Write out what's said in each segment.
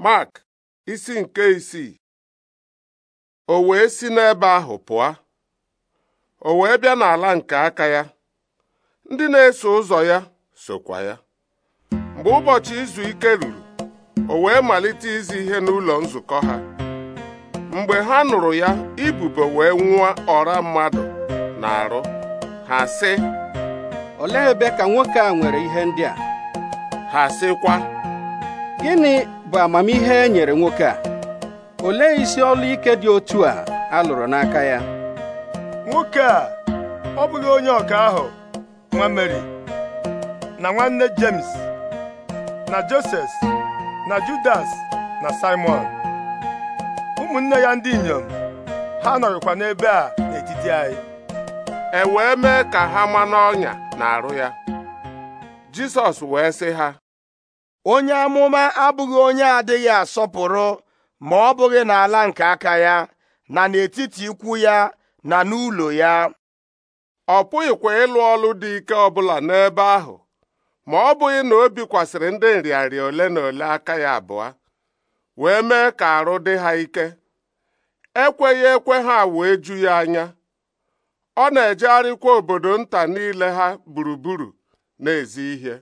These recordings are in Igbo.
Mark isi nke isii o wee si n'ebe ahụ pụọ o wee bịa n'ala nke aka ya ndị na-eso ụzọ ya sokwa ya mgbe ụbọchị izu ike ruru o wee malite izi ihe n'ụlọ nzukọ ha mgbe ha nụrụ ya ibubo wee nwụọ ọra mmadụ na-arụ ha sị olee ebe ka nwoke a nwere ihe ndị a ha sịkwa gịnị bụ amamihe e nyere nwoke a olee isi ọlụ ike dị otu a a lụrụ n'aka ya nwoke a ọ bụghị onye ọka ahụ nwa Mary na nwanne James na Joses na Judas na Simon ụmụnne ya ndị inyom ha nọrịkwa n'ebe a n'etiti anyị e wee mee ka ha ma n'ọnya na arụ ya Jisọs wee sị ha onye amụma abụghị onye adịghị asọpụrụ ma ọ bụghị n'ala nke aka ya na n'etiti ikwu ya na n'ụlọ ya ọ pụghịkwa ịlụ ọlụ dị ike ọbụla n'ebe ahụ ma ọ bụghị na o bikwasịrị ndị nrịarịa ole na ole aka ya abụọ wee mee ka arụ dị ha ike ekweghị ekwe ha wee ju ya anya ọ na-ejegharịkwa obodo nta niile ha gburugburu na-ezi ihe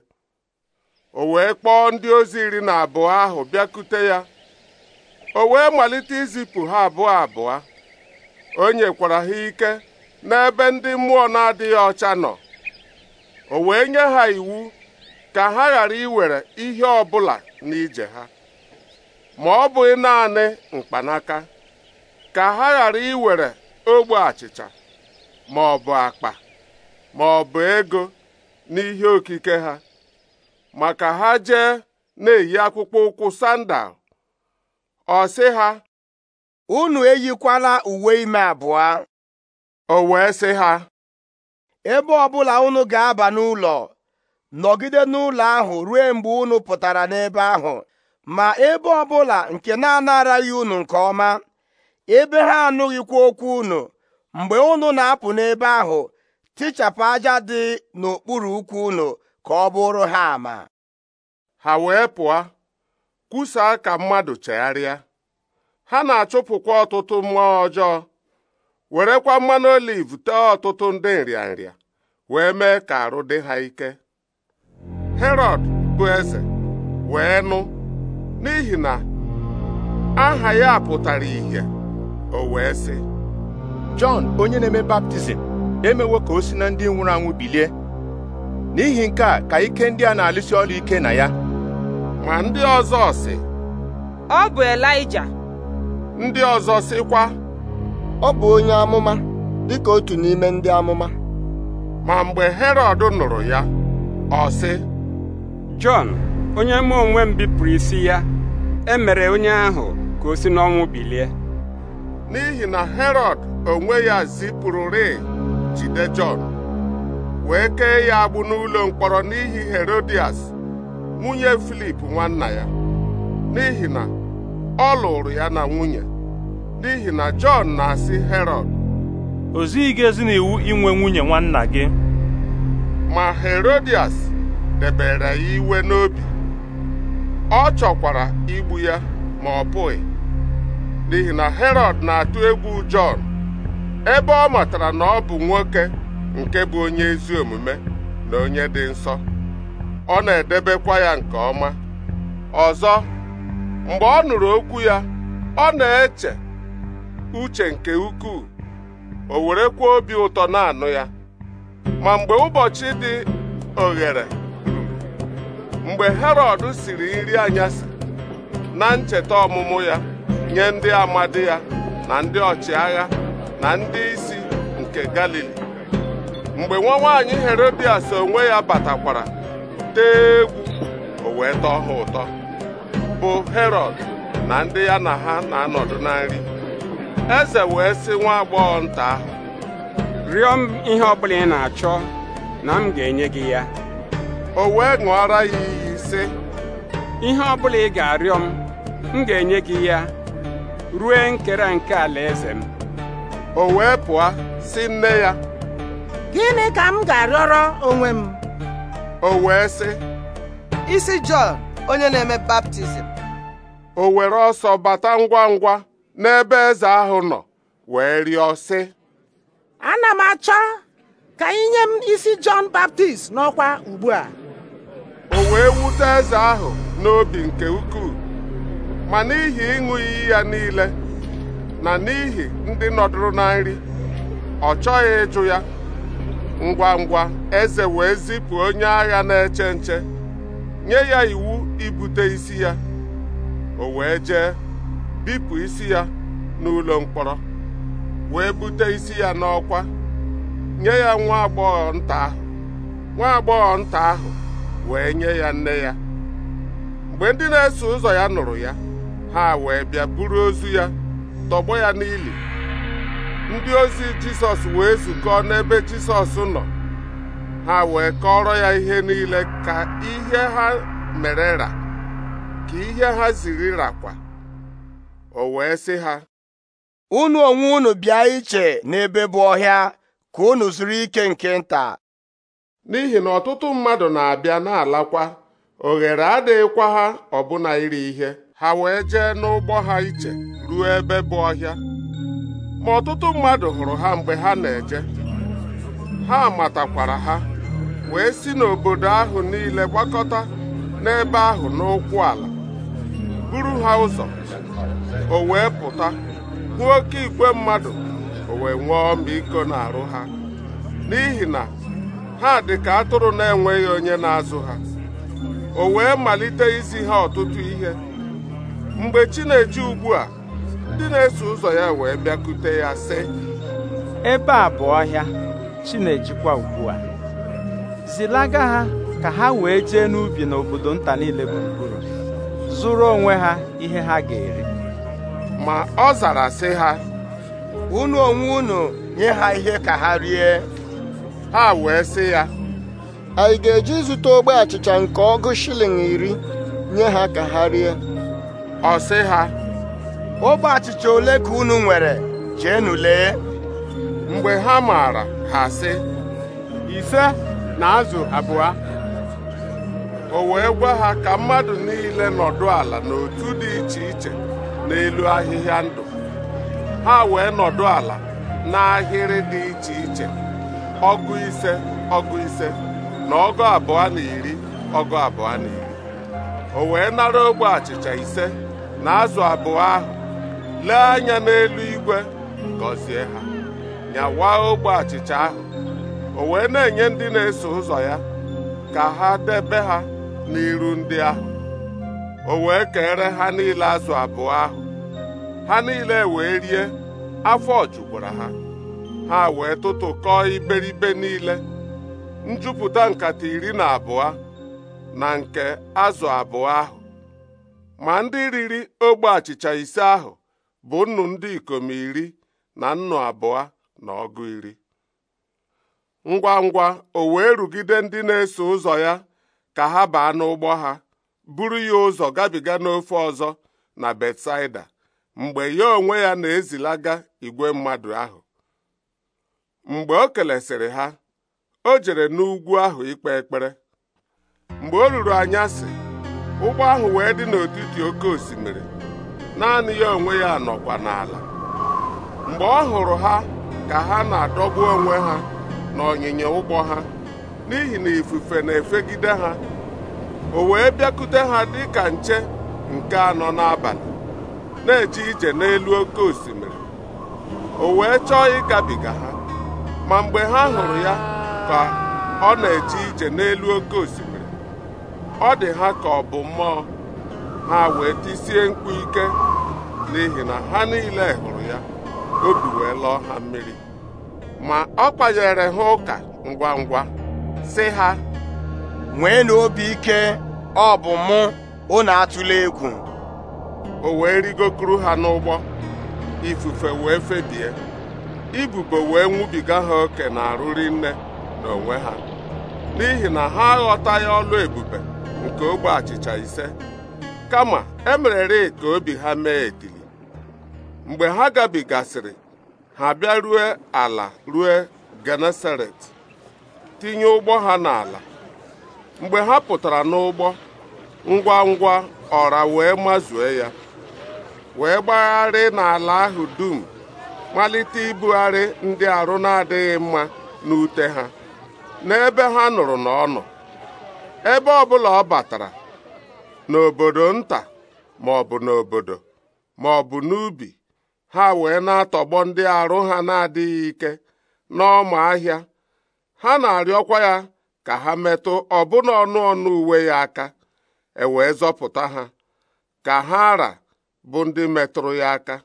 o wee kpọọ ndị ozi iri na abụọ ahụ bịakute ya o wee malite izipụ ha abụọ abụọ o nyekwara ha ike n'ebe ndị mmụọ na-adịghị ọcha nọ o wee nye ha iwu ka ha ghara iwere ihe ọbụla n'ije ha ma ọ bụghị naanị mkpanaka ka ha ghara iwere ogbe achịcha ma ọ bụ akpa ma ọ bụ ego n'ihe okike ha maka ha jee na-eyi akpụkpọ ụkwụ sandal ọ sị ha unu eyikwala uwe ime abụọ o wee sị ha ebe ọbụla unu ga-aba n'ụlọ nọgide n'ụlọ ahụ ruo mgbe unu pụtara n'ebe ahụ ma ebe ọbụla nke na-anaraghị unu nke ọma ebe ha anụghịkwa okwu unu mgbe unu na-apụ n'ebe ahụ tichapụ aja dị n'okpuru ụkwụ unu ka ọ bụrụ ha ama ha wee pụọ kwusaa ka mmadụ chegharịa ha na-achụpụkwa ọtụtụ mmụọ ọjọọ werekwa mmanụ oliv tee ọtụtụ ndị nrịanrịa wee mee ka arụ dị ha ike herod bụ eze wee nụ n'ihi na aha ya pụtara ìhè o wee sị Jọn onye na-eme baptizim emewo ka o si na ndị nwụrụ anwụ bilie n'ihi nke a ka ike ndị a na-alụsi ọrụ ike na ya ma ndị ọzọ sị ọ bụ Elaịja ndị ọzọ sịkwa ọ bụ onye amụma dị dịka otu n'ime ndị amụma ma mgbe herod nụrụ ya ọ sị Jọn onye mụ onwe m bipụrụ isi ya emere onye ahụ ka o si n'ọnwụ bilie n'ihi na herod onwe ya zipụrụrị jide Jọn wee kee ya agbụ n'ụlọ mkpọrọ n'ihi Herodias nwunye Filip nwanna ya n'ihi na ọ lụrụ ya na nwunye n'ihi na Jọn na-asị herod o zighị gị ezi n'iwu inwe nwunye nwanna gị ma Herodias debere ya iwe n'obi ọ chọkwara igbu ya ma ọ pụghị n'ihi na herod na-atụ egwu Jọn ebe ọ matara na ọ bụ nwoke nke bụ onye ezi omume na onye dị nsọ ọ na-edebekwa ya nke ọma ọzọ mgbe ọ nụrụ okwu ya ọ na-eche uche nke ukwuu o kwuo obi ụtọ na-anụ ya ma mgbe ụbọchị dị oghere mgbe Herọd siri nri anyasị na ncheta ọmụmụ ya nye ndị amadi ya na ndị ọchịagha na ndị isi nke Galili mgbe nwa nwaanyị Herodias onwe ya batakwara tee egwu o wee tọọ ha ụtọ bụ herod na ndị ya na ha na-anọdụ na nri eze wee sị nwa agbọghọ nta ahụ rịọ m ihe ọbụla ị na-achọ na m ga-enye gị ya o wee ṅụọra ya iyi sị ihe ọbụla ị ga-arịọ m m ga-enye gị ya rue nkere nke alaeze m o wee pụọ si nne ya gịnị ka m ga-arịọrọ onwe m o wee sị isi Jọn onye na-eme baptizim o were ọsọ bata ngwa ngwa n'ebe eze ahụ nọ wee rịọ sị ana m achọ ka inye m isi Jọn Baptist n'ọkwa ugbu a. o wee wute eze ahụ n'obi nke ukwuu ma n'ihi ịṅụ iyi ya niile na n'ihi ndị nọdụrụ na nri ọ chọghị ịjụ ya ngwa ngwa eze wee zipụ onye agha na-eche nche nye ya iwu ibute isi ya o wee jee bipụ isi ya n'ụlọ mkpọrọ wee bute isi ya n'ọkwa nye ya nwa agbọghọ nta ahụ nwa agbọghọ nta ahụ wee nye ya nne ya mgbe ndị na-eso ụzọ ya nụrụ ya ha wee bịa buru ozu ya tọgbọ ya n'ili ndị ozi jisọs wee zukọọ n'ebe jisọs nọ ha wee kọrọ ya ihe niile ka ihe ha mere ra ka ihe ha ziri rakwa o wee sị ha unu onwe unu bịa iche n'ebe bụ ọhịa ka unu zuru ike nke nta n'ihi na ọtụtụ mmadụ na-abịa na-alakwa oghere adịghịkwa ha ọbụna iri ihe ha wee jee n'ụgbọ ha iche ruo ebe bụ ọhịa ma ọtụtụ mmadụ hụrụ ha mgbe ha na-eje ha matakwara ha wee si n'obodo ahụ niile gbakọta n'ebe ahụ n'ụkwụ ala buru ha ụzọ o wee pụta hụ oke igwe mmadụ o wee nwee na arụ ha n'ihi na ha dị ka atụrụ na-enweghị onye na-azụ ha o wee malite izi ha ọtụtụ ihe mgbe chi na-eji ugbu a ndị na-eso ụzọ ya wee bịakute ya sị ebe a bụ ọhịa chinejikwa ugbu a zilaga ha ka ha wee jee n'ubi n'obodo nta niile gburugburu zụrụ onwe ha ihe ha ga-eri ma ọ zara sị ha unu onwe unu nye ha ihe ka ha rie ha wee sị ya anyị ga-eji zụta ogbe achịcha nke ọgụ shilling iri nye ha ka ha rie ọ sị ha ogbe achịcha ole ka unu nwere jeenu lee mgbe ha maara ha sị ise na azụ abụọ o wee gwa ha ka mmadụ niile nọdụ ala n'otu dị iche iche n'elu ahịhịa ndụ ha wee nọdụ ala n'ahịrị dị iche iche ọgụ ise ọgụ ise na ọgụ abụọ na iri ọgụ abụọ na iri o wee nara ogbe achịcha ise na azụ abụọ ahụ lee anya n'elu igwe gọzie ha nyawa ogbe achịcha ahụ o wee na-enye ndị na-eso ụzọ ya ka ha debe ha n'iru ndị ahụ o wee kere ha niile azụ abụọ ahụ ha niile wee rie afọ jukwara ha ha wee tụtụkọọ iberibe niile njupụta nkata iri na abụọ na nke azụ abụọ ahụ ma ndị riri ogbe achịcha ise ahụ bụ nnu ndị ikom iri na nnu abụọ na ọgụ iri ngwa ngwa o wee rugide ndị na-eso ụzọ ya ka ha baa n'ụgbọ ha buru ya ụzọ gabiga n'ofe ọzọ na Betsaida mgbe ya onwe ya na-ezilaga igwe mmadụ ahụ mgbe o kelesịrị ha o jere n'ugwu ahụ ikpe ekpere mgbe o ruru anyasị ụgbọ ahụ wee dị n'etiti oke osimiri naanị ya onwe ya nọkwa n'ala mgbe ọ hụrụ ha ka ha na-adọgbu onwe ha na ọnyịnya ụgbọ ha n'ihi na ifufe na-efegide ha o wee bịakute ha dị ka nche nke anọ n'abalị na eji ije n'elu oke osimiri o wee chọọ ịgabiga ha ma mgbe ha hụrụ ya ka ọ na-eje ije n'elu oke osimiri ọ dị ha ka ọ bụ mmụọ ha wee tisie mkpu ike n'ihi na ha niile hụrụ ya obi wee lọọ ha mmiri ma ọ kpanyere ha ụka ngwa ngwa si ha Nwee na obi ike ọ bụ mụ unu atụla egwu o wee rigokuru ha n'ụgbọ ifufe wee febie ibubo wee nwubiga ha oke na-arụri nne na onwe ha n'ihi na ha aghọtaghị ọlụ ebube nke ogbe achịcha ise kama e merere ka obi ha mee etili mgbe ha gabigasịrị ha bịa rue ala rue Genesaret tinye ụgbọ ha n'ala mgbe ha pụtara n'ụgbọ ngwa ngwa ọra wee mazue ya wee gbagharị n'ala ahụ dum malite ibugharị ndị arụ na-adịghị mma n'ute ha n'ebe ha nụrụ na ọ nọ ebe ọbụla ọ batara n'obodo nta ma ọ bụ n'obodo ma ọ bụ n'ubi ha wee na-atọgbọ ndị arụ ha na-adịghị ike n'ọma ahịa ha na-arịọkwa ya ka ha metụ ọbụna ọnụ ọnụ uwe ya aka e zọpụta ha ka ha ara bụ ndị metụrụ ya aka